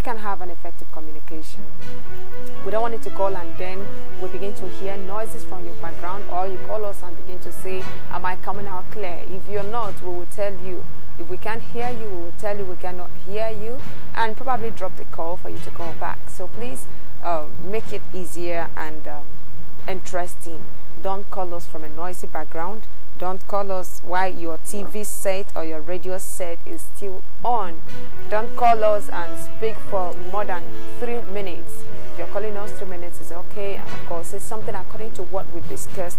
we can have an effective communication. We don't want you to call and then we begin to hear noises from your background or you call us and begin to say, am I coming out clear? If you're not, we will tell you. If we can't hear you, we will tell you we cannot hear you and probably drop the call for you to call back. So please uh, make it easier and um, interesting. Don't call us from a noisy background. Don't call us while your TV set or your radio set is still on. Don't call us and speak for more than three minutes. If you're calling us three minutes, is okay. And of course, it's something according to what we discussed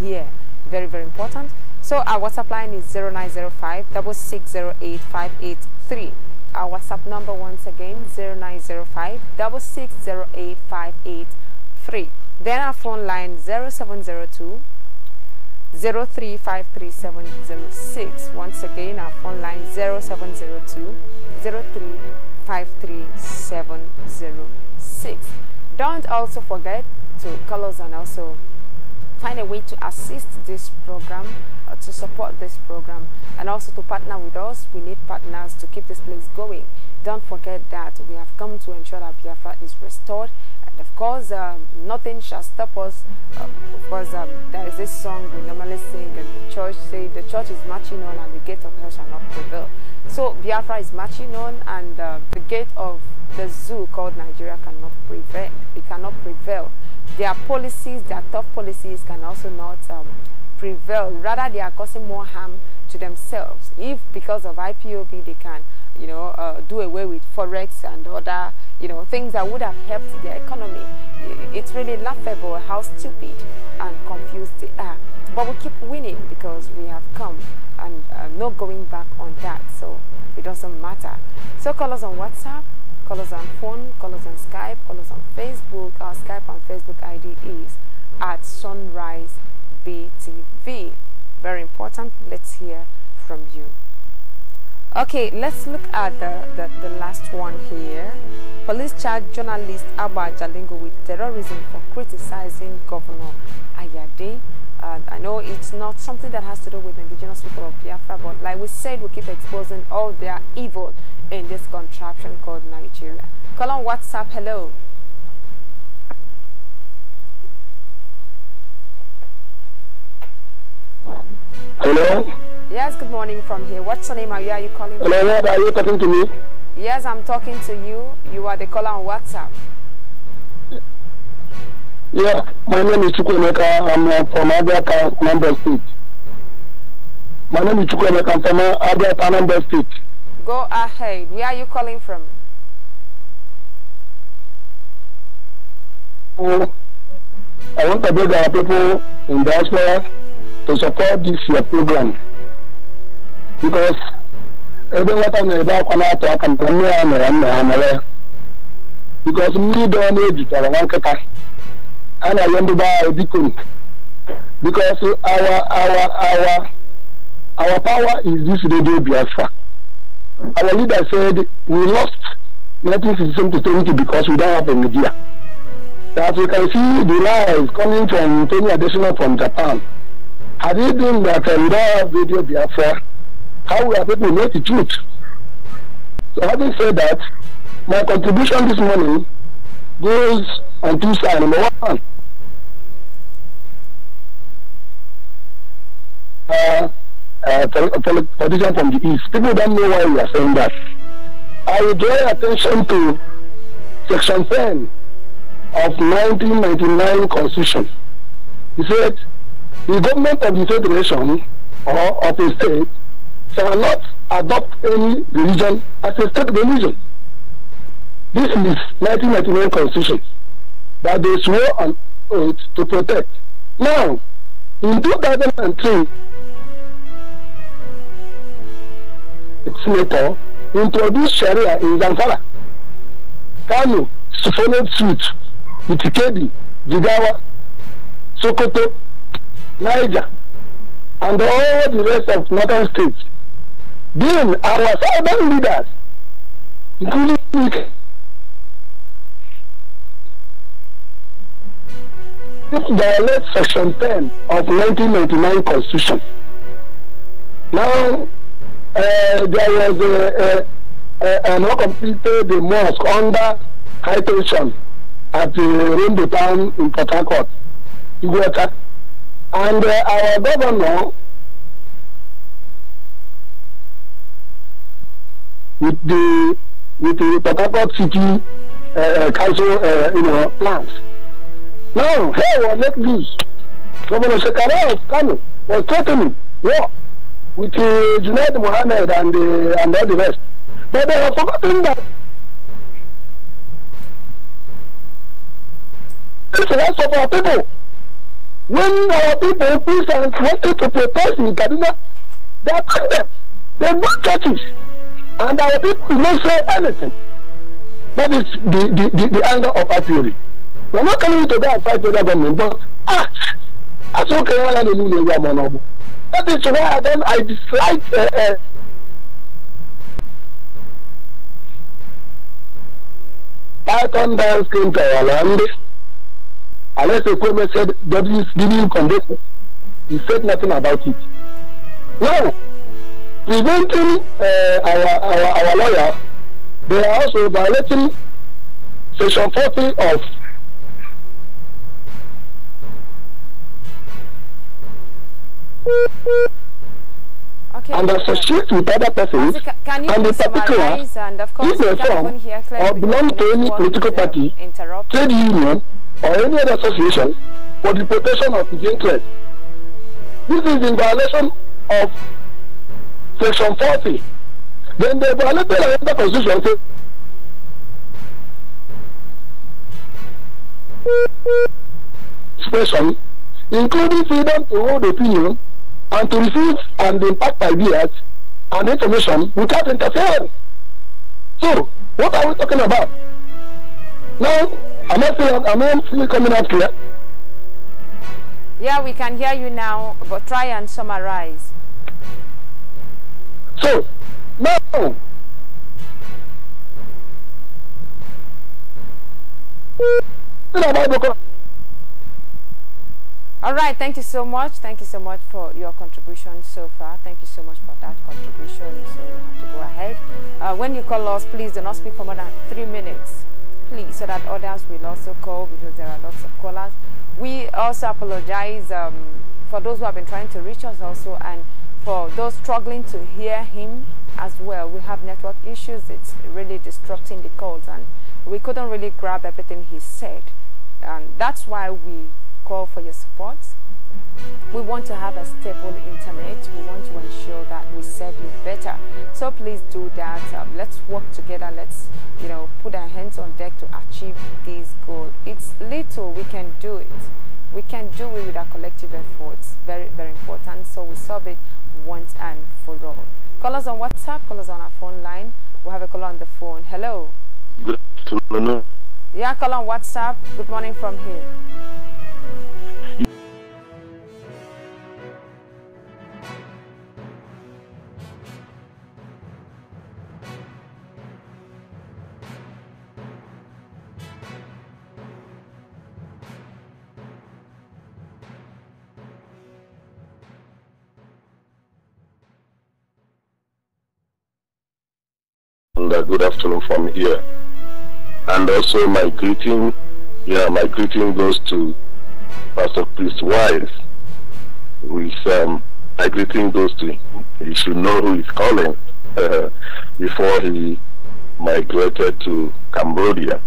here. Very, very important. So our WhatsApp line is 0905 Our WhatsApp number once again 0905 Then our phone line 0702 0353706. Once again, our phone line 702 353706 03537006. Don't also forget to call us and also find a way to assist this program, uh, to support this program, and also to partner with us. We need partners to keep this place going. Don't forget that we have come to ensure that Biafra is restored. And of course, um, nothing shall stop us. Um, of course, um, there is this song we normally sing and the church say, the church is marching on and the gate of hell shall not prevail. So Biafra is marching on and uh, the gate of the zoo called Nigeria cannot prevail. It cannot prevail. Their policies, their tough policies can also not um, prevail. Rather, they are causing more harm to themselves if because of IPOB they can you know uh, do away with forex and other you know things that would have helped their economy it's really laughable how stupid and confused they are but we keep winning because we have come and uh, no going back on that so it doesn't matter so call us on whatsapp call us on phone call us on skype call us on facebook our skype and facebook id is at sunrise btv very important. Let's hear from you. Okay, let's look at the, the, the last one here. Police charge journalist Abba Jalingo with terrorism for criticizing Governor Ayade. Uh, I know it's not something that has to do with indigenous people of Biafra, but like we said, we keep exposing all their evil in this contraption called Nigeria. Call on WhatsApp. Hello. Hello? Yes, good morning from here. What's your name? Are you, are you calling Hello, what are you talking to me? Yes, I'm talking to you. You are the caller on WhatsApp. Yeah, my name is Chukwemeka. I'm uh, from Abiaka, State. My name is Chukwemeka. I'm from uh, Abiaka, State. Go ahead. Where are you calling from? Oh, I want to beg our people in diaspora to support this year' program because ebe nwata na-ebe akwa na-atụ aka na nne ya mere nna ha mere ya because mmiri ọ na-ejutara nwa nkịta a na-arịọ to be anyị biko because our our our our power is this radio biafra our leader said we lost 1967 to 20 because we don't have a media that we can see the lies coming from Tony additional from Japan have you been that uh, we do video before? how will people know the truth? So having said that, my contribution this morning goes on two sides. Number one, uh, uh, politician from the East. People don't know why we are saying that. I will draw attention to Section 10 of 1999 Constitution. He said, the government of the federation or of a state shall not adopt any religion as a state religion. This is 1999 constitution that they swore an oath to protect. Now, in 2003, Senator introduced Sharia in Zamfara. Kano followed suit with Ikedi, Jigawa, Sokoto, Niger, and all the rest of northern states. Then our southern leaders, including the violate section 10 of 1999 constitution. Now, uh, there was a, a, a, an uncompleted mosque under high tension at the uh, Rainbow Town in Port Harcourt. You go attack and uh, our governor, with the with the Port City uh, uh, Council, uh, you know, plans. Now, hey, well, let this. Governor Shekara of Kano was threatening war with uh, Junaid Mohammed and, uh, and all the rest. But they have forgotten that this is the rest our people. When our people, Christians, wanted to protest in Kaduna, they attacked them. They built churches. And our people did not say anything. That is the, the, the, the anger of our theory. We're not coming to go and fight with the government, but act. That's okay. That is why then I dislike. Uh, uh, I come down screen to our land. Unless the government said W is giving you condition, he said nothing about it. Now, preventing uh, our, our, our they are also violating Section 40 of Okay. And associate with other persons can you and the particular, and of course if they form or belong to any political party, trade union, or any other association for the protection of his interest. This is in violation of Section 40. Then they violated another constitution. Expression, including freedom to hold opinion and to receive and impact ideas and information without interference. So, what are we talking about? Now, Am I still, am I still coming up here? Yeah, we can hear you now, but try and summarize. So, now, all right, thank you so much. Thank you so much for your contribution so far. Thank you so much for that contribution. So we have to go ahead. Uh, when you call us, please do not speak for more than three minutes quickly so that others will also call because there are lots of callers. We also apologize um, for those who have been trying to reach us also and for those struggling to hear him as well. We have network issues. It's really disrupting the calls and we couldn't really grab everything he said. And that's why we call for your support. We want to have a stable internet. We want to ensure that we serve you better. So please do that. Um, let's work together. Let's, you know, put our hands on deck to achieve this goal. It's little, we can do it. We can do it with our collective efforts. Very, very important. So we solve it once and for all. Call us on WhatsApp, call us on our phone line. We'll have a call on the phone. Hello. Good afternoon. Yeah, call on WhatsApp. Good morning from here. and good afternoon from here. And also my greeting, yeah, my greeting goes to Pastor Chris Wise. With um, my greeting goes to he should know who is calling uh, before he migrated to Cambodia.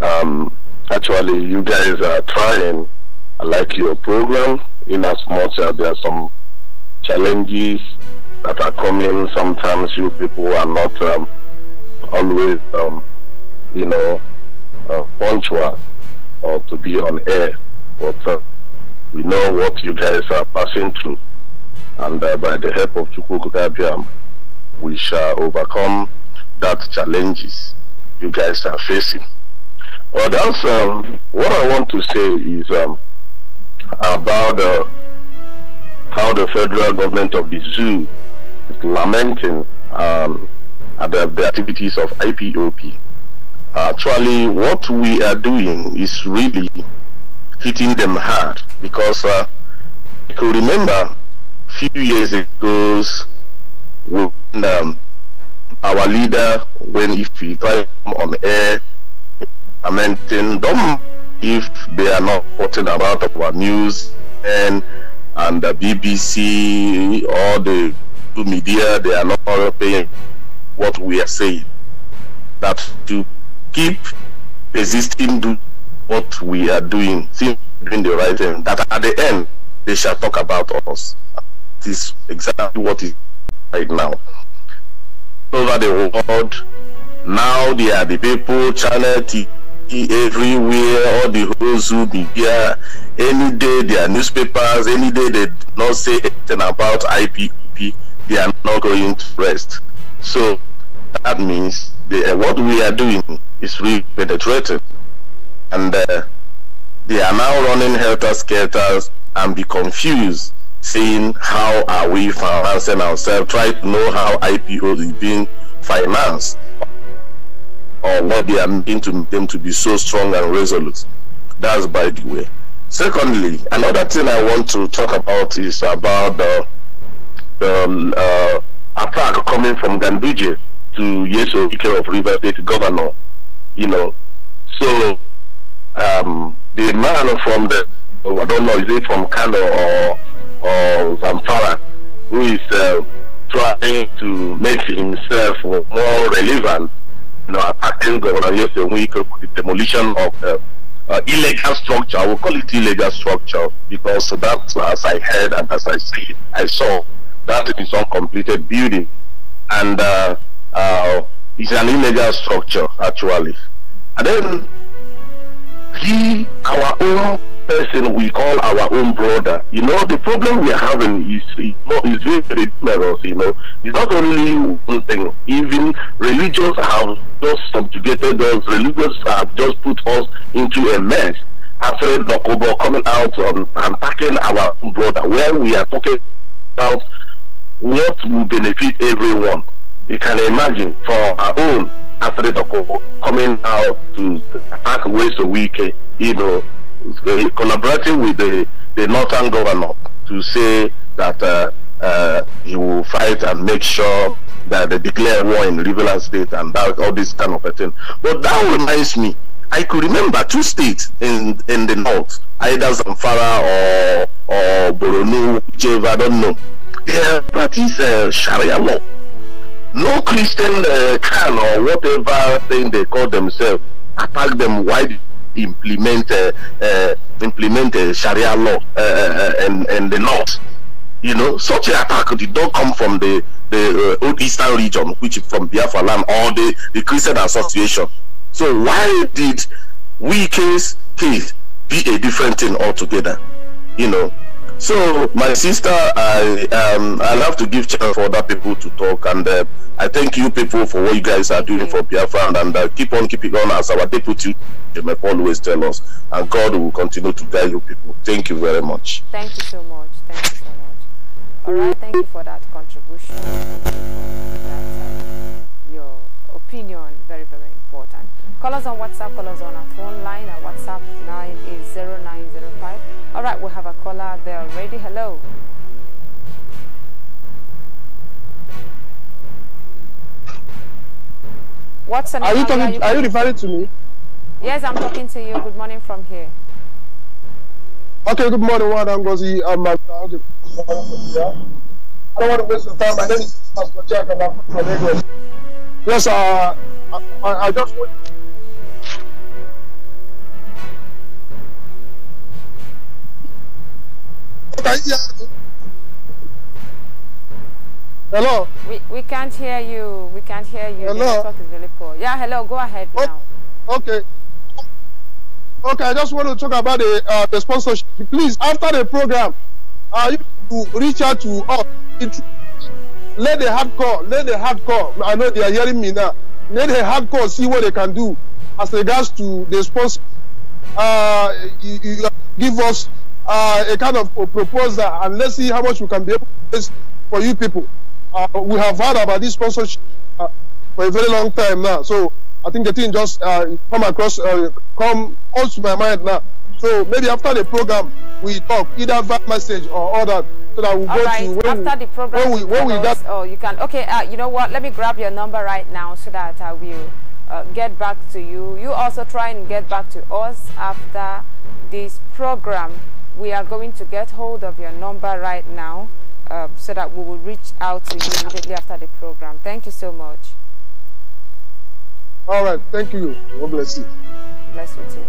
Um, actually, you guys are trying. I like your program in as much as there are some challenges that are coming. Sometimes you people are not um, always, um, you know, uh, punctual or to be on air. But uh, we know what you guys are passing through. And uh, by the help of Chukwukukabiam, we shall overcome that challenges you guys are facing. Well, that's um, what I want to say is um, about uh, how the federal government of the zoo is lamenting um, the, the activities of IPOP. Actually, what we are doing is really hitting them hard because uh, I could remember a few years ago when um, our leader, when if he tried on air, lamenting them if they are not reporting about our news and and the BBC or the media, they are not paying what we are saying. That to keep existing, do what we are doing, doing the right thing, that at the end they shall talk about us. This exactly what is right now. Over the world, now they are the people, channel TV everywhere, all the who be here. Any day there are newspapers, any day they not say anything about IPP, they are not going to rest. So that means the, uh, what we are doing is really penetrating. And uh, they are now running helter-skelter and be confused, saying, how are we financing ourselves? Try to know how IPO is being financed or what they are making to them to be so strong and resolute. That's by the way. Secondly, another thing I want to talk about is about the, the um, uh, attack coming from Ganduje to Yeso Ike of River State Governor, you know. So um, the man from the, oh, I don't know, is it from Kano or, or Zamfara, who is uh, trying to make himself more relevant, you know, attacking Governor Yeso Ike for the demolition of the uh, illegal structure. I will call it illegal structure because that's as I heard and as I see, I saw that is completed building and uh, uh, it's an illegal structure actually and then he our own person we call our own brother you know the problem we are having is is, is very ridiculous you know it's not only one thing even religions have just subjugated us religions have just put us into a mess after Dokobo coming out and attacking our brother where we are talking about what will benefit everyone. You can imagine for our own athlete coming out to attack ways a week, you know, collaborating with the, the northern governor to say that uh, uh, he will fight and make sure that they declare war in Riverland State and that, all this kind of a thing. But that reminds me, I could remember two states in in the north, either Zamfara or or Boronu, whichever I don't know their that is uh, Sharia law. No Christian uh, can or whatever thing they call themselves attack them while implement uh, uh, implement uh, Sharia law uh, uh, uh and and the laws. You know, such an attack did not come from the the uh, old Eastern region, which is from Biafra land or the the Christian Association. So why did we case case be a different thing altogether? You know, so, my sister, I um, I love to give chance for other people to talk, and uh, I thank you people for what you guys are doing for Biafra, and uh, keep on keeping on as our deputy. may always tell us, and God will continue to guide you people. Thank you very much. Thank you so much. Thank you so much. All right, thank you for that contribution. That, uh, your opinion very very important. Call us on WhatsApp. Call us on our phone line. Our WhatsApp all right, we have a caller there already. Hello. What's Are you talking? Are you, are you referring to me? Yes, I'm talking to you. Good morning from here. Okay, good morning, Juan Ngozi. I'm I don't want to waste your time. My name is Pastor Jack. I'm from Lagos. Yes, uh, I, I just want Hello. We we can't hear you. We can't hear you. Hello. The network is really poor. Yeah, hello. Go ahead oh, now. Okay. Okay, I just want to talk about the uh, the sponsorship. Please, after the program, uh, you to reach out to us. It, let the hardcore, let the hardcore. I know they are hearing me now. Let the hardcore see what they can do as regards to the sponsor. Uh, you, you give us uh, a kind of a proposal and let's see how much we can be able to raise for you people. Uh, we have heard about this sponsorship uh, for a very long time now. So I think the thing just uh, come across, uh, come comes to my mind now. So maybe after the program, we talk either via message or other. So that we'll All go right. to after we, the program, when we, when we got, oh, you can. Okay, uh, you know what? Let me grab your number right now so that I uh, will get back to you. You also try and get back to us after this program we are going to get hold of your number right now uh, so that we will reach out to you immediately after the program. Thank you so much. All right. Thank you. God bless you. Bless you too.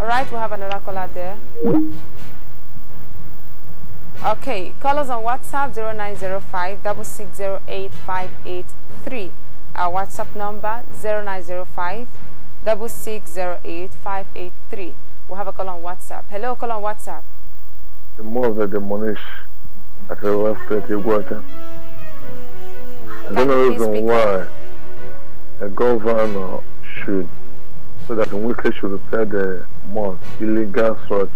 All right. have another caller there. Okay. Call us on WhatsApp 0905 Our WhatsApp number 0905 double six zero eight five eight three. We have a call on WhatsApp. Hello, call on WhatsApp. The more the demolish at the left thirty water. I don't know reason why the governor should so that Wike should repair the most illegal search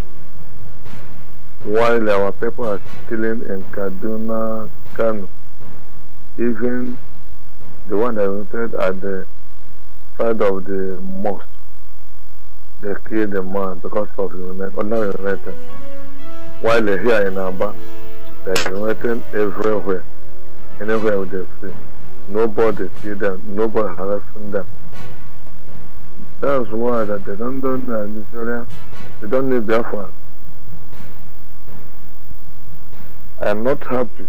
while our people are killing in Kaduna Kano. Even the one that rented at the side of the mosque, they killed the man because of ordinary urinating. While they're here in Aba, they're urinating everywhere, anywhere they see. Nobody see them, nobody harassing them. That's why that they don't do that in They don't need their fans. I am not happy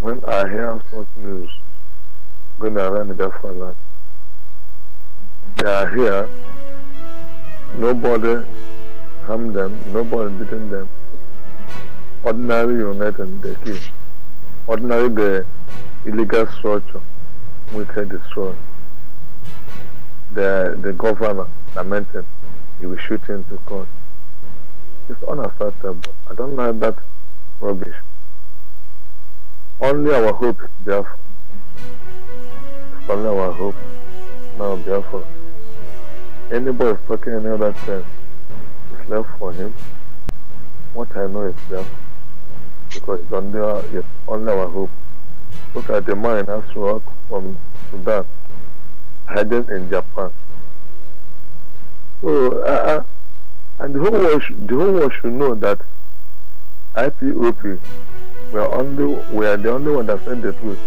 when I hear such news going around in Biafra land they uh, are here. Nobody harmed them, nobody beaten them. Ordinary unit and they kill. Ordinary the illegal structure we can destroy. The the governor lamented he will shoot into court. It's unacceptable. I don't like that rubbish. Only our hope is It's only our hope. Now Biafra. Any motherfucker in other sense uh, It's left for him. What I know is left. Because it's under, it's under our hope. Look at the man in Asrock from Sudan, hiding in Japan. So, uh, uh and the whole, world should, the whole world should know that IPOP, we are, only, we are the only one that said the truth.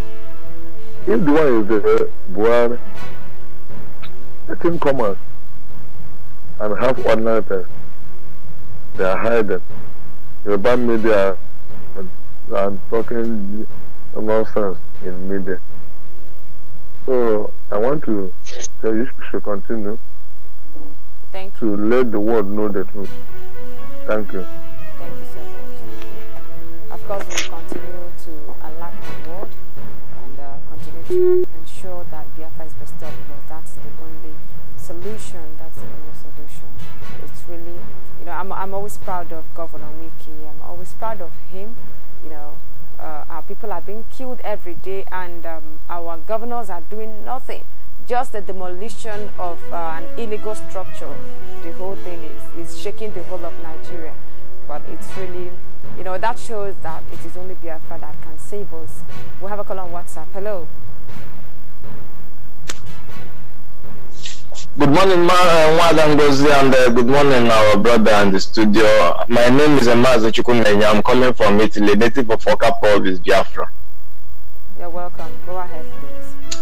If the one is the uh, let him come out and half one tests. They are hiding. bad media and talking nonsense in media. So I want to tell you to continue. Thank you. To let the world know the truth. Thank you. Thank you so much. Of course, we'll continue to alert the world and uh, continue to ensure that Biafra is restored because that's the only solution that I'm, I'm always proud of Governor Miki. I'm always proud of him. You know, uh, our people are being killed every day, and um, our governors are doing nothing. Just the demolition of uh, an illegal structure. The whole thing is, is shaking the whole of Nigeria. But it's really, you know, that shows that it is only Biafra that can save us. We have a call on WhatsApp. Hello. Good morning, Ma uh, Ngozi, and uh, good morning, our brother in the studio. My name is Emazo Chukunenya. I'm calling from Italy, native of Oka is Biafra. You're welcome. Go ahead, please.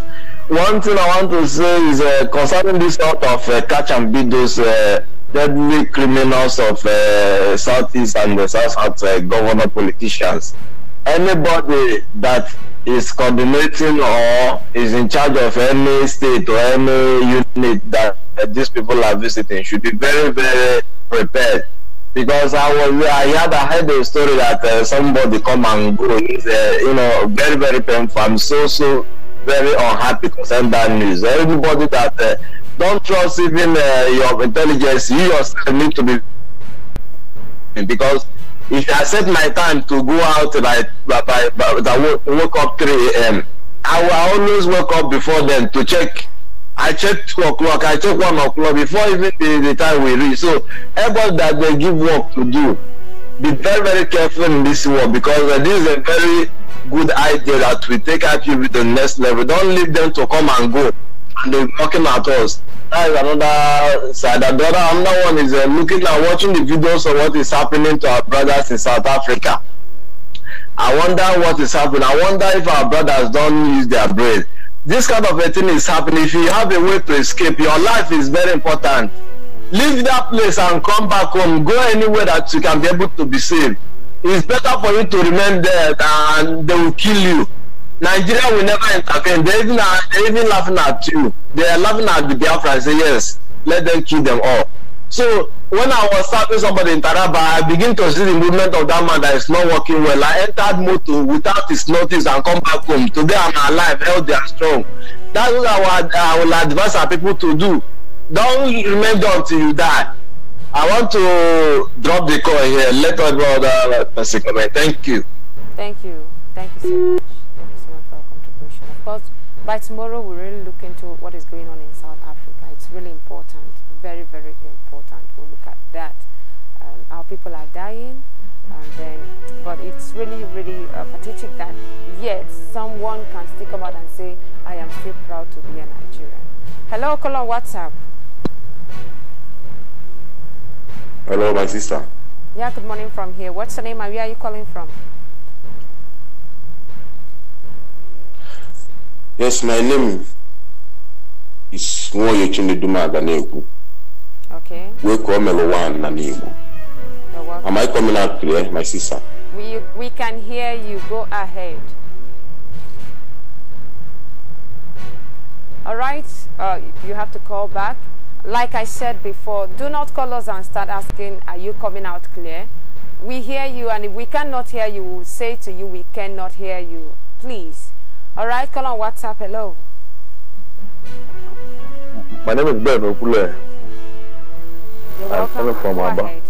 One thing I want to say is uh, concerning this sort of uh, catch and beat those uh, deadly criminals of uh, Southeast and the South South governor politicians. Anybody that is coordinating or is in charge of any state or any unit that, these people are visiting should be very, very prepared. Because I was, I had, I heard a story that uh, somebody come and go. is uh, you know, very, very painful. I'm so, so very unhappy concerning that news. Everybody that uh, don't trust even uh, your intelligence, you yourself need to be because if I set my time to go out by, by, by, by woke up 3 a.m., I will always wake up before then to check. I check 2 o'clock, I check 1 o'clock before even the, the time we reach. So, everybody that they give work to do, be very, very careful in this work because uh, this is a very good idea that we take our people to the next level. Don't leave them to come and go and they're knocking at us that is another side. the other another one is uh, looking and watching the videos of what is happening to our brothers in South Africa. I wonder what is happening. I wonder if our brothers don't use their brain. This kind of a thing is happening. If you have a way to escape, your life is very important. Leave that place and come back home. Go anywhere that you can be able to be saved. It's better for you to remain there than they will kill you Nigeria will never intervene. They're even, they're even laughing at you. They're laughing at the Biafra and say, yes, let them kill them all. So when I was serving somebody in Taraba, I begin to see the movement of that man that is not working well. I entered moto without his notice and come back home. Today I'm alive, healthy and strong. That's what I would, I would advise our people to do. Don't remain there until you die. I want to drop the call here. Let us brother person comment. Thank you. Thank you. Thank you so much. Because by tomorrow, we really look into what is going on in South Africa. It's really important, very, very important. We'll look at that. Um, our people are dying, and then, but it's really, really uh, pathetic that yet someone can stick about and say, I am still proud to be a Nigerian. Hello, call What's up? Hello, my sister. Yeah, good morning from here. What's your name and where are you calling from? Yes, my name is Nwoye Chimeduma Aganegu. Okay. We call Melowan Nanegu. Am I coming out clear, my sister? We, we can hear you. Go ahead. All right. Uh, you have to call back. Like I said before, do not call us and start asking, are you coming out clear? We hear you, and if we cannot hear you, we will say to you, we cannot hear you. Please. All right, call on WhatsApp. Hello. My name is Ben Okule. I'm coming from Abba.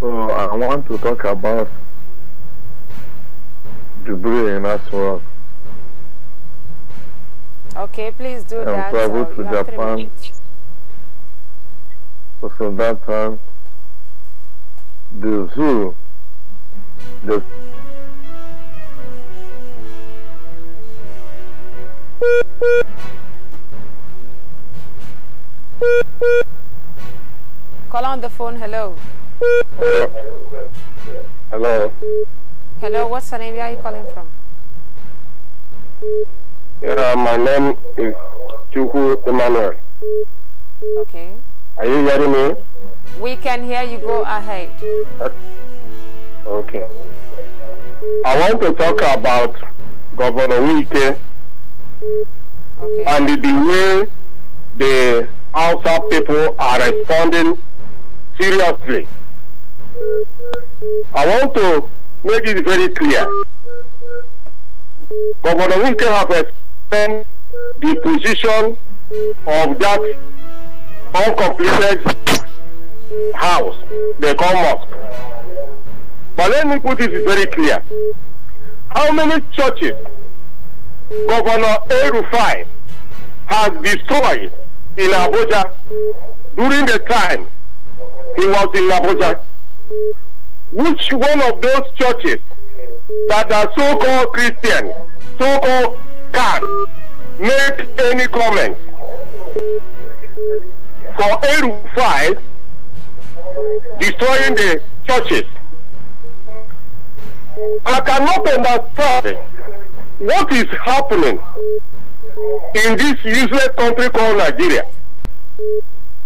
So I want to talk about debris in well. Okay, please do I'm um, that. so to Japan. So from that time, the zoo, the Call on the phone, hello. Hello. Hello, what's the name? Where are you calling from? Yeah, my name is Chuku Emmanuel. Okay. Are you hearing me? We can hear you. Go ahead. Okay. I want to talk about Governor Wike Okay. And the way the Hausa people are responding seriously. I want to make it very clear. Governor Wike have explained the position of that uncompleted house, the call mosque. But let me put it very clear. How many churches Governor Erufai has destroyed in Abuja during the time he was in Abuja. Which one of those churches that are so-called Christian, so-called can make any comment for Erufai destroying the churches? I cannot understand what is happening in this useless country called Nigeria?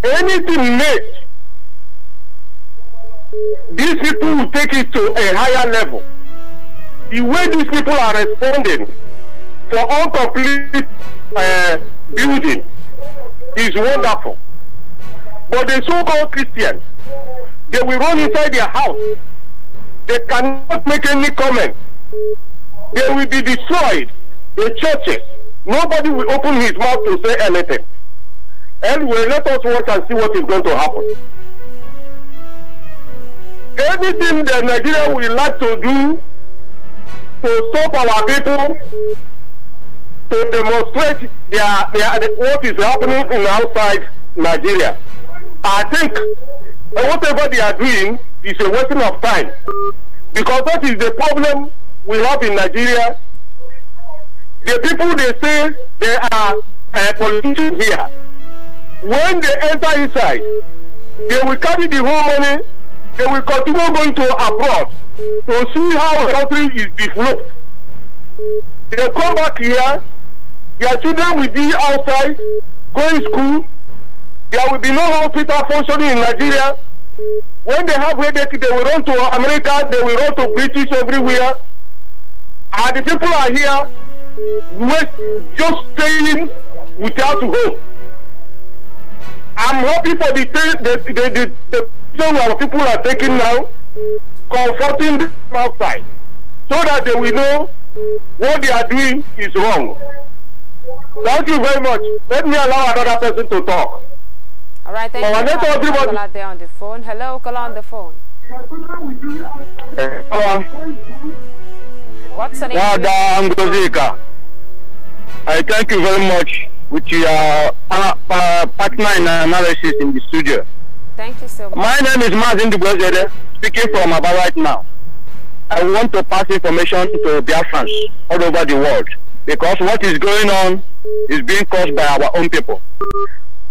Anything made, these people will take it to a higher level. The way these people are responding for incomplete uh, building is wonderful. But the so-called Christians, they will run inside their house. They cannot make any comment. They will be destroyed. The churches. Nobody will open his mouth to say anything. Anyway, let us watch and see what is going to happen. Anything that Nigeria will like to do to stop our people to demonstrate their, their, what is happening in outside Nigeria. I think whatever they are doing is a wasting of time because that is the problem we have in Nigeria, the people they say they are uh, politicians here, when they enter inside, they will carry the whole money, they will continue going to abroad to see how the country is developed. They come back here, their children will be outside, going to school, there will be no hospital functioning in Nigeria. When they have headache, they will run to America, they will run to British everywhere. And the people are here just staying without hope. I'm happy for the the the, the, the people are taking now, comforting them outside, so that they will know what they are doing is wrong. Thank you very much. Let me allow another person to talk. All right, thank well, you. Let there on the phone. Hello, call on the phone. Hello. Uh, um, What's your name? Angozika. I thank you very much with your uh, uh, partner in analysis in the studio. Thank you so much. My name is Mazin Dubozede, speaking from about right now. I want to pass information to Biafrans all over the world because what is going on is being caused by our own people.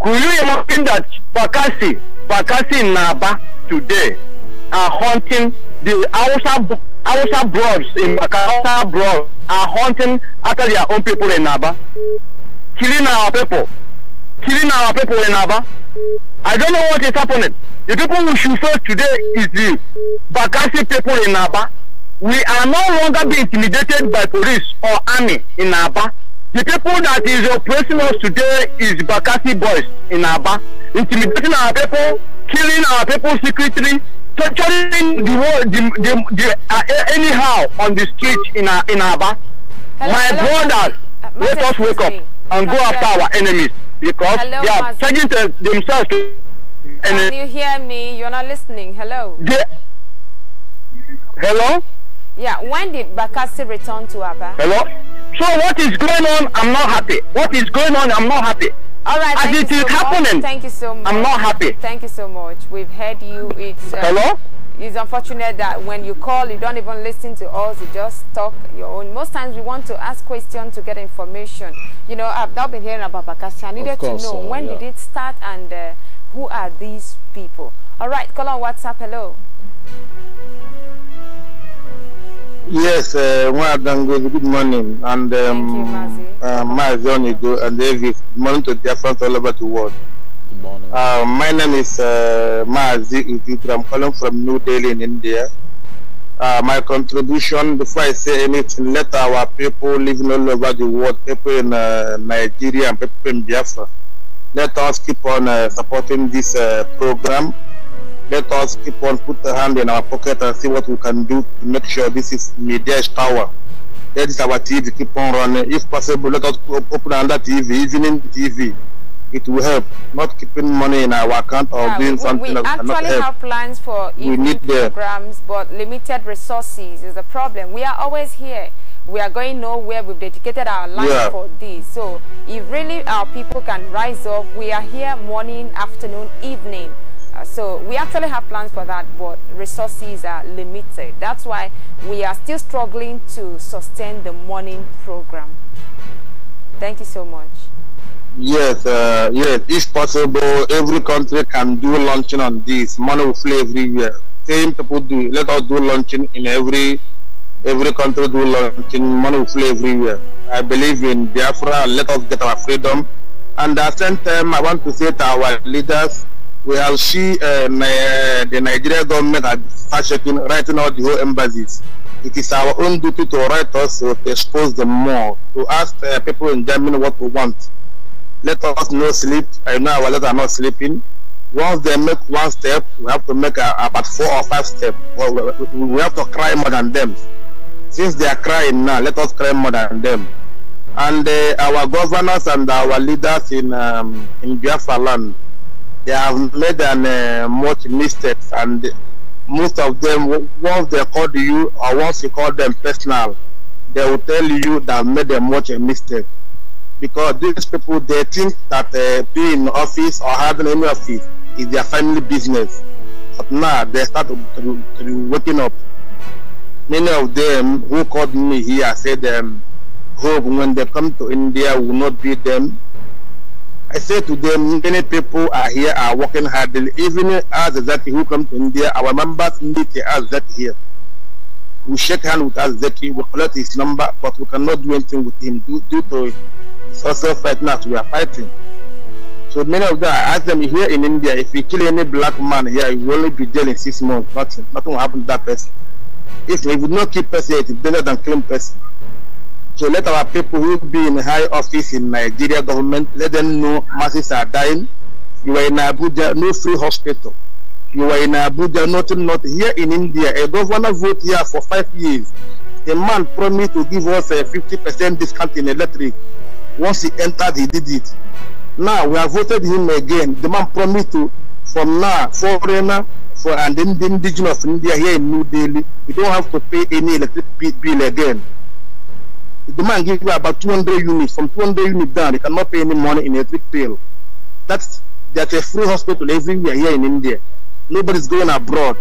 Could you imagine that Bakasi, Bakasi Naba today are hunting the Hausa our broads in Bakassi broads are hunting after their own people in Naba, killing our people, killing our people in Naba. I don't know what is happening. The people who should serve today is the Bakasi people in Naba. We are no longer being intimidated by police or army in Naba. The people that is oppressing us today is Bakasi boys in Aba, intimidating our people, killing our people secretly, torturing the the, the, the, uh, anyhow on the street in uh, in Aba. My brothers, uh, let us wake up and go after our enemies because Hello, they are taking themselves to Can you hear me? You're not listening. Hello. They, hello? Yeah, when did Bakassi return to Aba? Hello? So what is going on? I'm not happy. What is going on? I'm not happy. All right. As it is so happening. Much. Thank you so much. I'm not happy. Thank you so much. We've heard you. It's um, hello. It's unfortunate that when you call, you don't even listen to us. You just talk your own. Most times, we want to ask questions to get information. You know, I've now been hearing about Bakassi. I needed course, to know uh, when yeah. did it start and uh, who are these people. All right, call on WhatsApp. Hello. Yes, uh, good morning, and um, Thank you, Mazi. uh, Mazi and morning to dear friends all over the world. Good morning. Uh, my name is uh, I'm calling from New Delhi in India. Uh, my contribution, before I say anything, let our people living all over the world, people in uh, Nigeria and people in Biafra, let us keep on uh, supporting this uh, program. Let us keep on put a hand in our pocket and see what we can do to make sure this is media's power that is our TV. Keep on running. If possible, let us open another TV, evening TV. It will help. Not keeping money in our account or yeah, doing we, something we actually have plans for we need programs, the, but limited resources is the problem. We are always here we are going nowhere. We've dedicated our life yeah. for this. So if really our people can rise up, we are here morning, afternoon, evening. Uh, so we actually have plans for that, but resources are limited. That's why we are still struggling to sustain the morning program. Thank you so much. Yes, uh, yes. If possible, every country can do launching on this. Money will flow Same people do. Let us do launching in every every country do launching. Money will flow year I believe in Biafra. Let us get our freedom. And at the same time, I want to say to our leaders, we have seen uh, the Nigerian government had fact-checking, writing out the whole embassies. It is our own duty to write us to expose them more, to ask uh, people in Germany what we want. Let us not sleep. I know our letters are not sleeping. Once they make one step, we have to make uh, about four or five steps. We have to cry more than them. Since they are crying now, let us cry more than them. And uh, our governors and our leaders in um, in Biafra land, they have made an, uh, much mistakes and most of them once they call you or once you call them personal they will tell you that made them much a mistake because these people they think that uh, being in office or having any office is their family business but now they start to, to, to waking up many of them who called me here said um, hope when they come to india will not be them I say to them, many people are here are working hard. Even us that who come to India, our members meet us that here. We shake hand with us that we collect his number, but we cannot do anything with him due, due to it's also fight as we are fighting. So many of them, I ask them here in India, if you kill any black man here, you will only be jailed in six months. Nothing, nothing will happen to that person. If we would not kill person, it is better than killing person. So let our people who be in high office in Nigeria government, let them know masses are dying. You are in Abuja, no free hospital. You are in Abuja, nothing, not here in India. A governor vote here for five years. A man promised to give us a 50% discount in electric. Once he entered, he did it. Now we have voted him again. The man promised to, from now, foreigner, for and then the indigenous India here in New Delhi, we don't have to pay any electric bill again the man gave you about 200 units. From 200 units down, they cannot pay any money in electric bill. That's there's a free hospital everywhere here in India. Nobody's going abroad.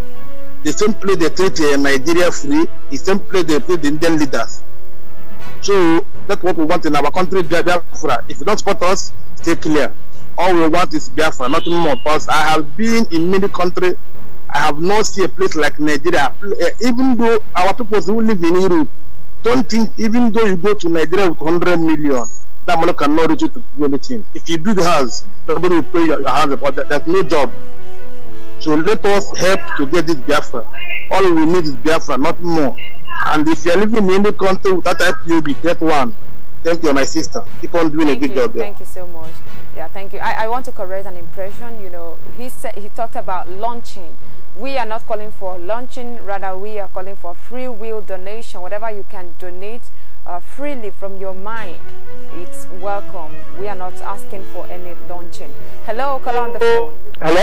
They simply they treat uh, Nigeria free, They simply they treat the Indian leaders. So that's what we want in our country, Biafra. If you don't support us, stay clear. All we want is Biafra, nothing more. Because I have been in many countries, I have not seen a place like Nigeria. Uh, even though our people who live in Europe, don't think even though you go to Nigeria with 100 million, that money cannot reach you to do anything. If you build house, nobody will pay your, house. about that. There's no job. So let us help to get this Biafra. All we need is Biafra, not more. And if you're living in any country without be get one. Thank you, my sister. Keep on doing thank a good you, job there. Thank you so much. Yeah, thank you. I, I want to correct an impression. You know, he said he talked about launching we are not calling for launching rather we are calling for free will donation whatever you can donate uh, freely from your mind it's welcome we are not asking for any launching hello call on the phone hello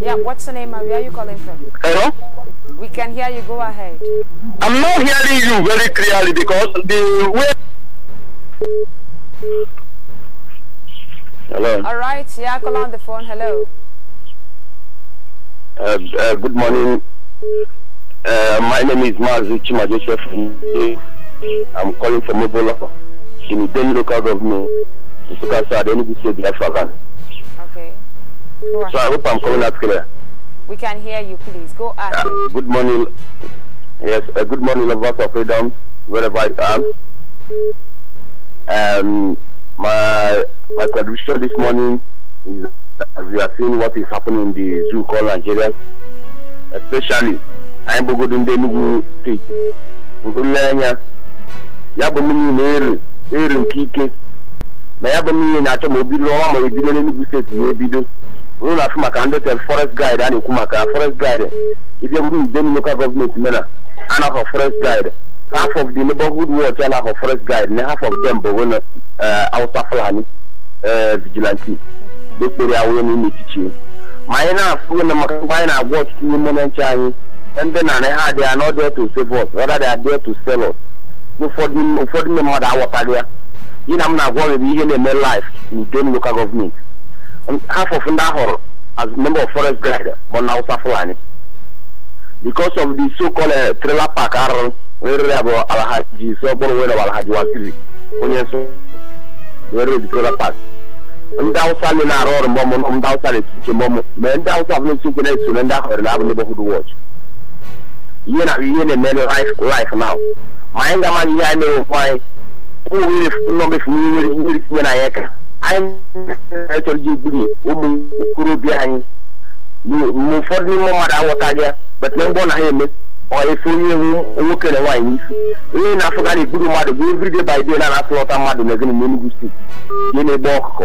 yeah what's your name and where are you calling from hello we can hear you go ahead i'm not hearing you very clearly because the way hello all right yeah call on the phone hello uh, uh, good morning. Uh, my name is Mazu Chima Joseph. I'm calling from Ebola in Uden local government, Sukasa, Enugu State, Biafra. Okay. So I hope I'm coming out clear. We can hear you, please. Go ahead. Uh, good morning. Yes, uh, good morning, lovers of freedom, wherever I am. Um, my, my contribution this morning is as we are seeing what is happening in the zoo called Nigeria, especially anyị bụgodo ndị Enugu steeti bụgo nleanya ya bụ mmiri na-eri eri nke ike na ya bụ mmiri na-achọ ma obido ọnwa ma ebido n'Enugu steeti ma ebido unu na-afụ maka ndị tel forest guide a na-ekwu maka forest guide If you bụrụ Idem local government mena half of forest guide half of the neighborhood watch and half of forest guide and half of them bụ ousa uh, Fulani uh, vigilante ekpere awụọ n'ime echiche ma anyị na-afụ na maka mgbe anyị na-agwa ọtụtụ n'ime na nche anyị ndị narị ha adịghị anọ dị to save us rather they are there to sell us ụfọdụ ndị mmadụ aghọtaghị ya gị na m na-agwa gị ihe na-eme life n'Idem m government half of ndị ahọrọ as member of forest guard bụ na Hausa Fulani because of the so-called eh, trailer park arụrụ werere ya bụ Alhaji ise ọ bụrụ were Alhaji Waziri onye nso werere the trailer park ndị awụsa ndị na-arụ ọrụ mgbọmụ ndị awụsa na-esiche mgbọmụ ma ndị awụsa bụ n'isi nke na-eso na ndị ahụrụ na-abụ neighborhood watch ihe na ihe na-eme life now ma anyị ga-ama ihe anyị mere ụkwụ anyị ụmụ nọmefu mmiri mmiri tinye na anyị ka anyị na-echọrọ ji egburi ụmụ okorobịa anyị mgbe ụfọdụ n'ime mmadụ aghọtaghị ya betụna mgbọ na ha eme efe onye nwoke na nwaanyị n'isi onye na-afụgarị egburu mmadụ bụ everyday by day na-anasịlọta mmadụ na ezinụlọ Enugu steeti ihe na-egbe ọkụkọ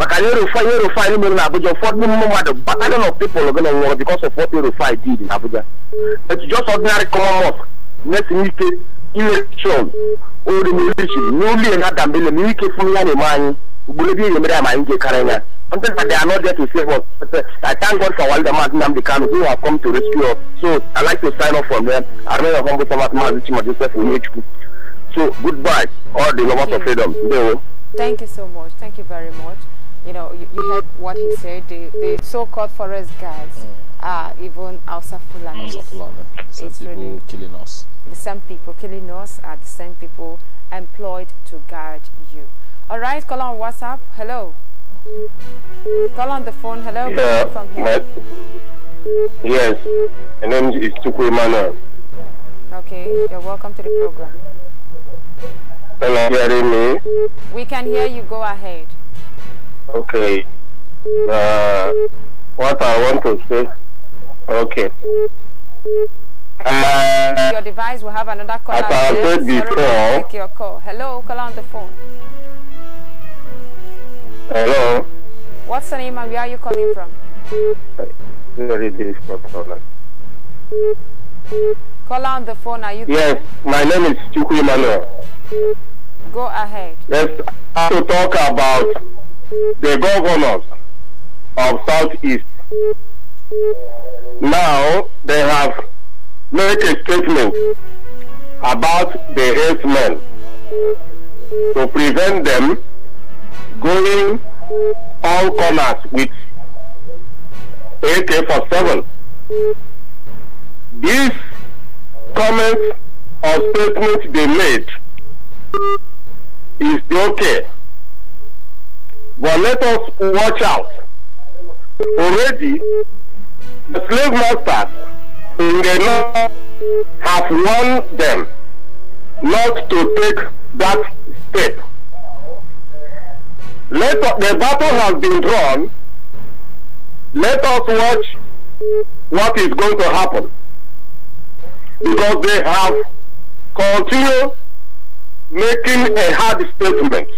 maka na Erufai Erufai mere na Abuja ụfọdụ mmadụ battalion of people gana nwụrụ because of what Erufai did in Abuja but just ordinary common mosque na-etinye ike election oremerichiri the na adambele na ike fun ya they are not there to save us. Uh, I thank God for Walda Martinam Dekano who have come to rescue us. So I'd like to sign off from them. I remain a humble servant, Mazichima Joseph Onyechukwu. So goodbye, all the lovers of freedom. Thank you so much. Thank you very much you know, you, you heard what he said, the, the so-called forest guards mm. are even also Fulani. Hausa Fulani. people really killing us. The same people killing us are the same people employed to guard you. All right, call on WhatsApp. Hello. Call on the phone. Hello. Yeah, from here. yes, my name is Tukwe Mana. Okay, you're welcome to the program. Can you hear me? We can hear you. Go ahead. Okay. Uh, what I want to say. Okay. Uh, your device will have another caller. As I said before. Take your call. Hello, call on the phone. Hello. What's your name and where are you calling from? Very difficult problem. on the phone, are you Yes, there? my name is Chukwu Manuel. Go ahead. Yes, have to talk about the governors of Southeast. Now they have made a statement about the herdsmen to prevent them going all corners with AK-47. This comment or statement they made is okay but let us watch out. Already, the slave masters in the north have warned them not to take that step. Let the battle has been drawn. Let us watch what is going to happen. Because they have continued making a hard statement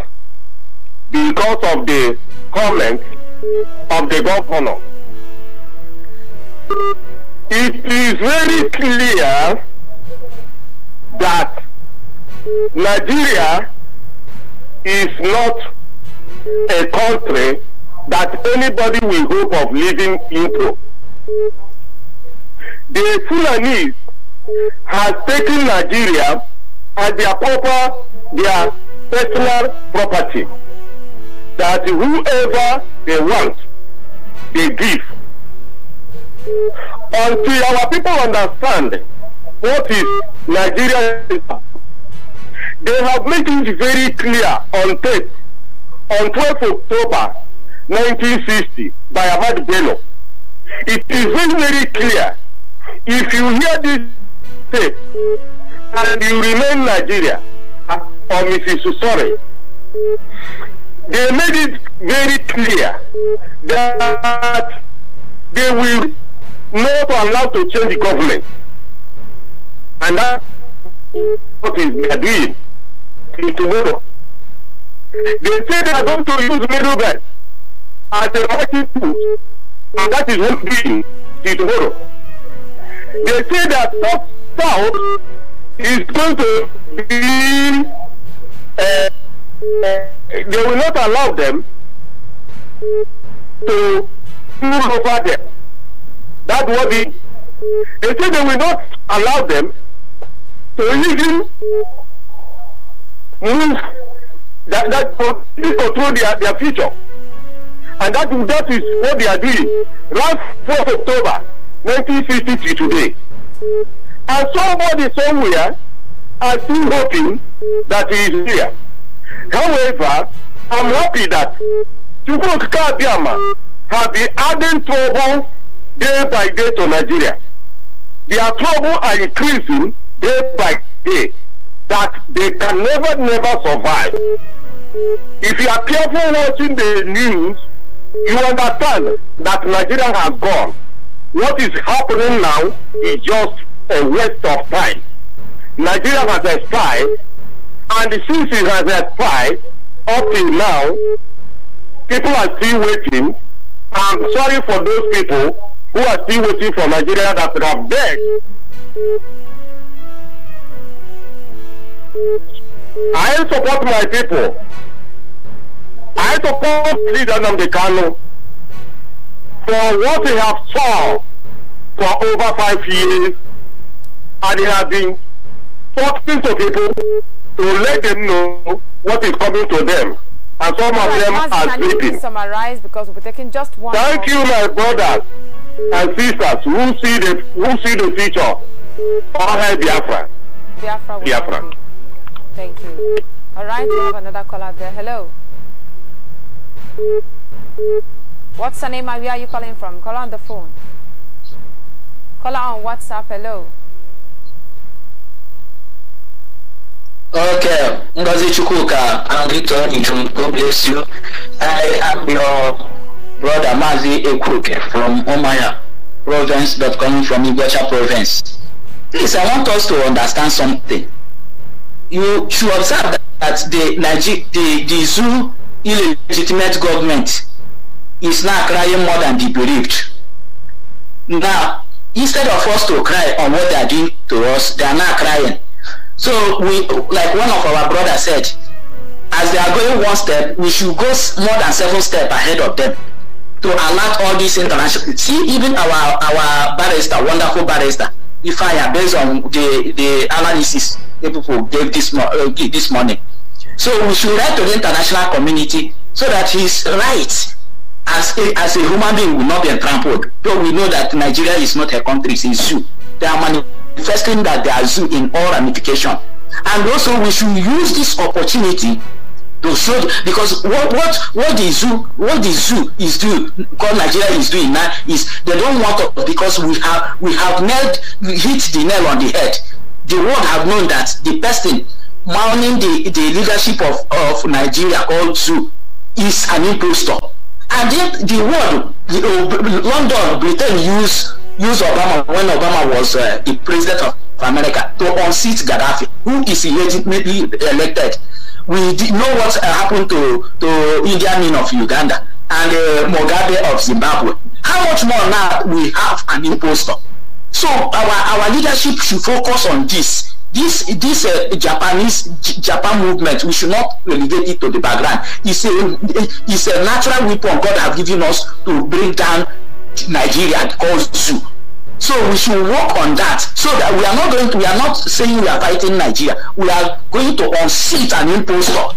because of the comment of the governor. It is very clear that Nigeria is not a country that anybody will hope of living into. The Fulanese has taken Nigeria as their proper, their personal property that whoever they want, they give. Until our people understand what is Nigeria, they have made it very clear on tape on 12th October 1960 by Ahmad Bello. It is very, very clear. If you hear this tape and you remain Nigeria uh, or Mrs. Susore, they made it very clear that they will not allow to change the government. And that's what is they are doing tomorrow. They say they are going to use middlemen as a marketing tool. And that is what they doing till tomorrow. They say that South South is going to be uh, they will not allow them to rule over them. That's what the they say they will not allow them to even move that that to control their, their future. And that, that is what they are doing. Last 4th October nineteen fifty three today. And somebody somewhere are still hoping that he is here. However, I'm happy that Chukwuka Abiyama have been adding trouble day by day to Nigeria. Their trouble are increasing day by day that they can never, never survive. If you are careful watching the news, you understand that Nigeria has gone. What is happening now is just a waste of time. Nigeria has expired and since it has expired, up till now, people are still waiting. I'm sorry for those people who are still waiting for Nigeria that have begged. I support my people. I support leader Namdekano for what he has fought for over five years and he has been talking to people to let them know what is coming to them. And some of them are can sleeping. Can you summarize because we're taking just one. Thank you, my brothers and sisters who see the who see the future. All hail Biafra. Biafra. Biafra. Thank you. All right, we have another caller there. Hello. What's the name where are you calling from? Call on the phone. Call on WhatsApp. Hello. Okay, Ngozi Chukwuka, I'm Victor Nijum. God bless you. I am your brother Mazi Ekuke from Omaya province, but coming from Igbocha province. Please, I want us to understand something. You should observe that the, Niger the, the zoo illegitimate government is now crying more than the bereaved. Now, instead of us to cry on what they are doing to us, they are now crying. So we, like one of our brothers said, as they are going one step, we should go more than several steps ahead of them to alert all these international. See, even our our barrister, wonderful barrister, if I am based on the the analysis the people gave this uh, this morning. So we should write to the international community so that his rights as a, as a human being will not be trampled. Though we know that Nigeria is not a country, it's you. zoo. There are many first thing that they are in all ramification. And also we should use this opportunity to show because what what what the zoo what the zoo is doing what nigeria is doing now is they don't want us because we have we have nailed hit the nail on the head the world have known that the person mounting the the leadership of of nigeria called zoo is an impostor and yet the world the, uh, london britain use Use Obama when Obama was uh, the president of America to unseat Gaddafi, who is legitimately elected. We did know what uh, happened to, to Indian men of Uganda and uh, Mugabe of Zimbabwe. How much more now we have an impostor? So our, our leadership should focus on this. This this uh, Japanese J Japan movement, we should not relegate it to the background. It's a it's a natural weapon God has given us to bring down Nigeria calls you. So we should work on that so that we are not going to, we are not saying we are fighting Nigeria. We are going to unseat an impostor.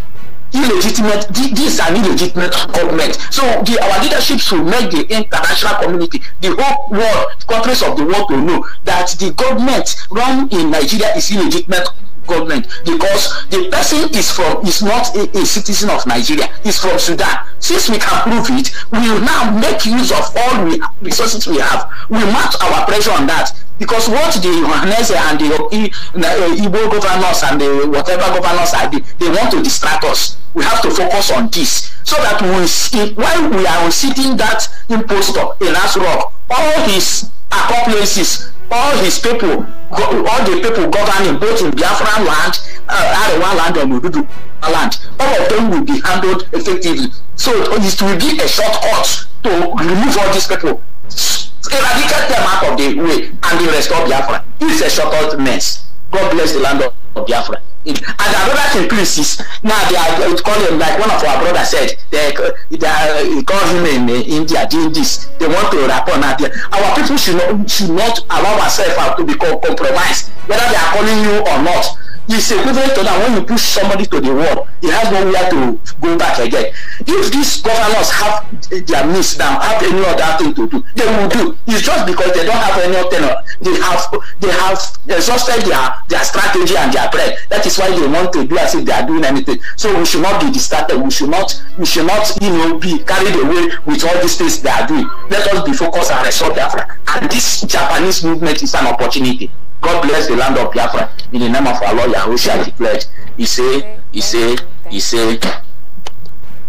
Illegitimate, this is an illegitimate government. So the, our leadership should make the international community, the whole world, countries of the world to know that the government run in Nigeria is illegitimate government because the person is from is not a, a citizen of Nigeria, is from Sudan. Since we can prove it, we will now make use of all the resources we have. We mount our pressure on that because what the Johannes and the uh, Igbo governors and the whatever governors are, they, they want to distract us. We have to focus on this so that we see, while we are sitting that impostor in Asrock, all his accomplices all his people all the people governing both in Biafran land, uh, Arewa land and Odudu land, all of them will be handled effectively. So it will be a shortcut to remove all these people, eradicate them out of the way and restore Biafra. It's a shortcut mess. God bless the land of Biafra. and our brothers in Christ now they are calling. him like one of our brothers said they they are call him in uh, India doing this they want to rapport now our people should not should not allow ourselves to be compromised whether they are calling you or not it's equivalent to that when you push somebody to the wall he has nowhere to go back again if these governors have their needs now, have any other thing to do, they will do. It's just because they don't have any other. They have they have exhausted their, their strategy and their bread. That is why they want to do as if they are doing anything. So we should not be distracted. We should not we should not you know be carried away with all these things they are doing. Let us be focused and resolve Africa. And this Japanese movement is an opportunity. God bless the land of Biafra. In the name of our Lord Yahushua declared. He say, he say, he say,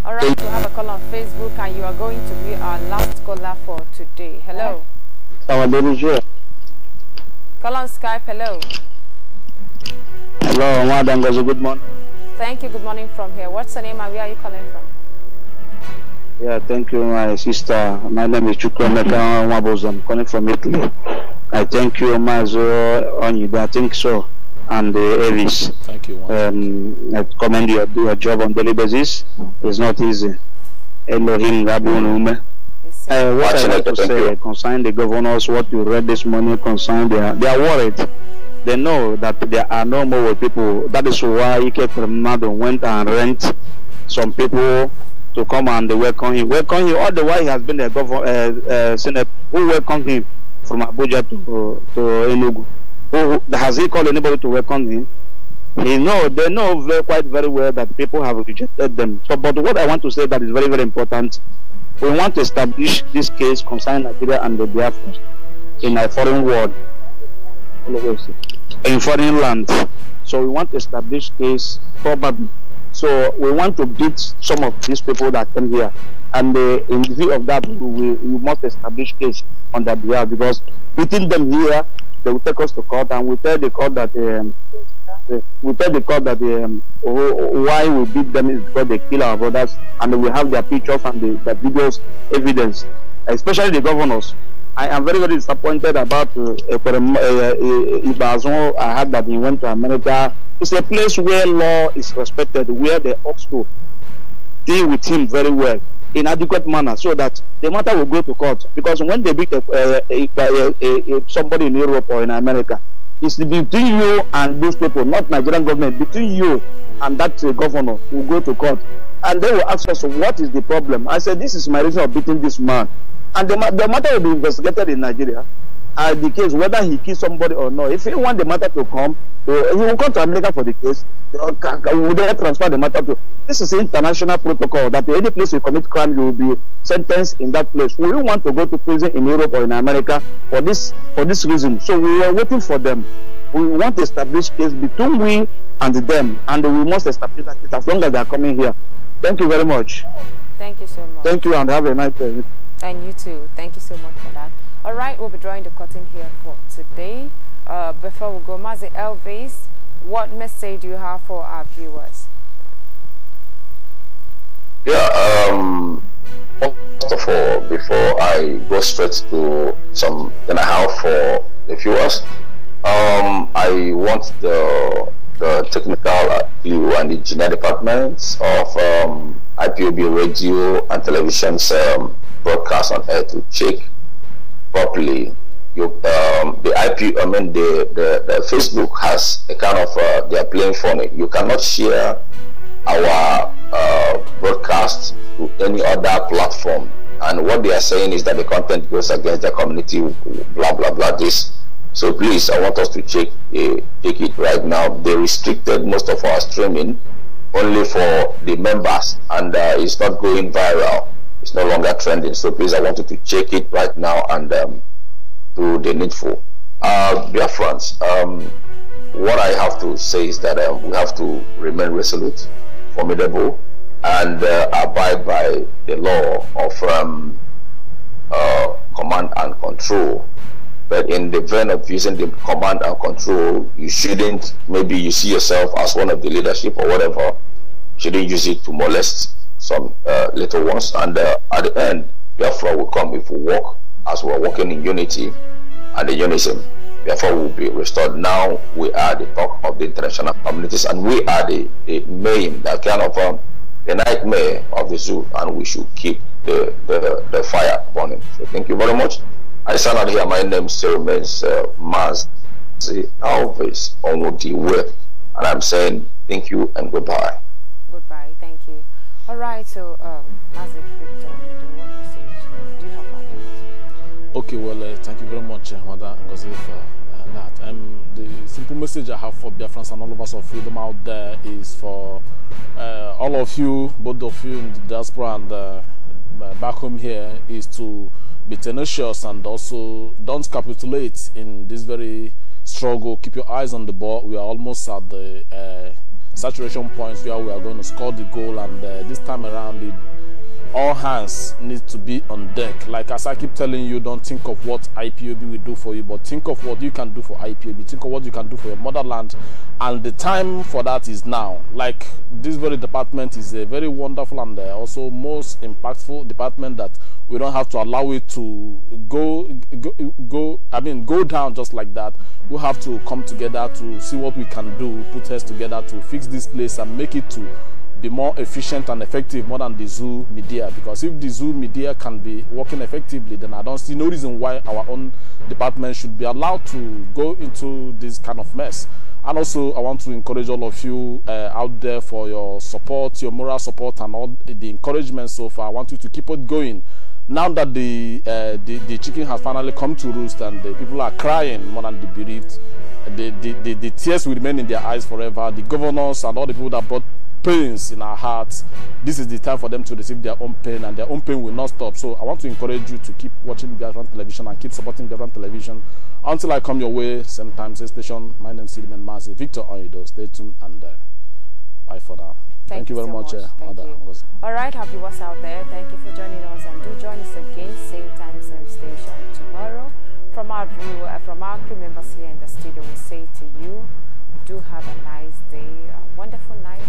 all right, we have a call on Facebook, and you are going to be our last caller for today. Hello. Our baby Call on Skype. Hello. Hello, Madam Good morning. Thank you. Good morning from here. What's your name and where are you calling from? Yeah, thank you, my sister. My name is Chukwemeka Wabos. I'm calling from Italy. I thank you, Mazo Onyida. I think so and uh, Avis. Thank you. Um, I commend your, a job on daily basis. It's not easy. Elohim Rabunume. Uh, what I like to say you. concerning the governors, what you read this morning concerning they are worried. They know that there are no more people. That is why he from Kremado went and rent some people to come and welcome him. Welcome him all the while he has been a governor, uh, uh, senator who welcomed him from Abuja to, to Enugu who has he called anybody to welcome him? He know they know very, quite very well that people have rejected them. So, but what I want to say that is very very important. We want to establish this case concerning Nigeria and the Biafra in a foreign world, in foreign land. So we want to establish case probably. So we want to beat some of these people that came here. And uh, in view of that, we, we must establish case on their behalf because beating them here they will take us to court and we tell the court that um, we tell the court that um, why we beat them is because they kill our brothers and we have their pictures and the, the videos evidence especially the governors I am very, very disappointed about uh, uh, uh Ibazon. I heard that he went to America. It's a place where law is respected, where they ought to deal with him very well in adequate manner so that the matter will go to court. Because when they beat a, a, a, somebody in Europe or in America, it's between you and those people, not Nigerian government, between you and that uh, governor will go to court. And they will ask us, what is the problem? I said, this is my reason of beating this man. And the, the matter will be investigated in Nigeria. As the case, whether he kills somebody or not, if he want the matter to come, uh, he will come to America for the case. would they transfer the matter to? This is international protocol that any place you commit crime, you will be sentenced in that place. We want to go to prison in Europe or in America for this for this reason. So we are waiting for them. We want to establish case between we and them, and we must establish that as long as they are coming here. Thank you very much. Thank you so much. Thank you, and have a nice day. And you too. Thank you so much for that. Alright, we'll be drawing the curtain here for today. Uh, before we go, Mazi Elvis, what message do you have for our viewers? Yeah, um, first of all, before I go straight to some then I have for the viewers, um, I want the the technical uh, view and the engineer departments of um, IPOB radio and television's um, broadcast on air to check properly, you, um, the IP, I mean, the, the, the Facebook has a kind of, uh, they are playing phonic. You cannot share our uh, broadcast to any other platform. And what they are saying is that the content goes against the community, blah, blah, blah, this. So please, I want us to check, eh, check it right now. They restricted most of our streaming only for the members and uh, it's not going viral. It's no longer trending. So please, I want you to check it right now and um, do the needful. Uh, dear friends, um, what I have to say is that uh, we have to remain resolute, formidable, and uh, abide by the law of um, uh, command and control. But in the vein of using the command and control, you shouldn't, maybe you see yourself as one of the leadership or whatever, shouldn't use it to molest some uh, little ones and uh, at the end Biafra will come if we walk as we are walking in unity and the unison Biafra will be restored now we are the talk of the international communities and we are the, the main that kind of um, the nightmare of the zoo and we should keep the, the, the fire burning so thank you very much I stand out here my name still remains uh, Maz Alves Onwudi and I'm saying thank you and goodbye all right, so um, Victor, do you have for Okay, well, uh, thank you very much, uh, Madam Ngozi, for uh, that. Um, the simple message I have for Biafrans and all of us of freedom out there is for uh, all of you, both of you in the diaspora and uh, uh back home here, is to be tenacious and also don't capitulate in this very struggle. Keep your eyes on the ball. We are almost at the uh, saturation points where we are going to score the goal. And uh, this time around, the all hands need to be on deck. Like as I keep telling you, don't think of what IPOB will do for you, but think of what you can do for IPOB. Think of what you can do for your motherland. And the time for that is now. Like this very department is a very wonderful and uh, also most impactful department that we don't have to allow it to go, go, go, I mean, go down just like that. We have to come together to see what we can do, put heads together to fix this place and make it to be more efficient and effective more than the zoo media because if the zoo media can be working effectively then i don't see no reason why our own department should be allowed to go into this kind of mess and also i want to encourage all of you uh, out there for your support your moral support and all the encouragement so far i want you to keep it going now that the, uh, the, the chicken has finally come to roost and the people are crying more than the bereaved the, the, the, the tears will remain in their eyes forever the governors and all the people that brought pains in our hearts, this is the time for them to receive their own pain, and their own pain will not stop. So I want to encourage you to keep watching Government Television and keep supporting Government Television until I come your way, same time, same station. My name is Silman Mazi, Victor Oyedo. Stay tuned and uh, bye for now. Thank, Thank you, very so much, much. Uh, Thank you. All right, happy what's out there. Thank you for joining us, and do join us again, same time, same station tomorrow. From our view, uh, from our crew members here in the studio, we say to you, do have a nice day, a wonderful night.